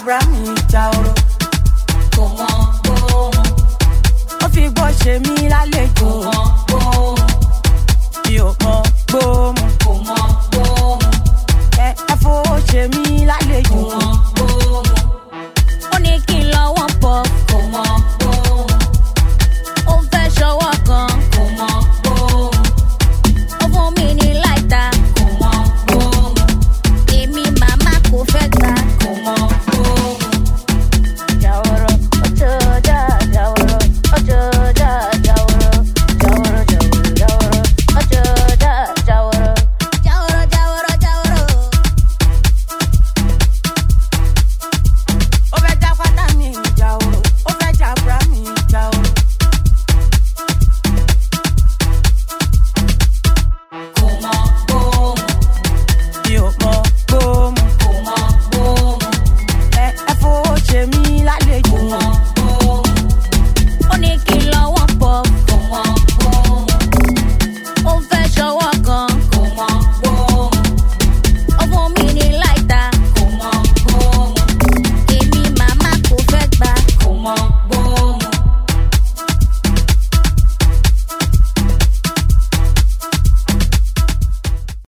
Abrahamu ìjà oró. Ó fi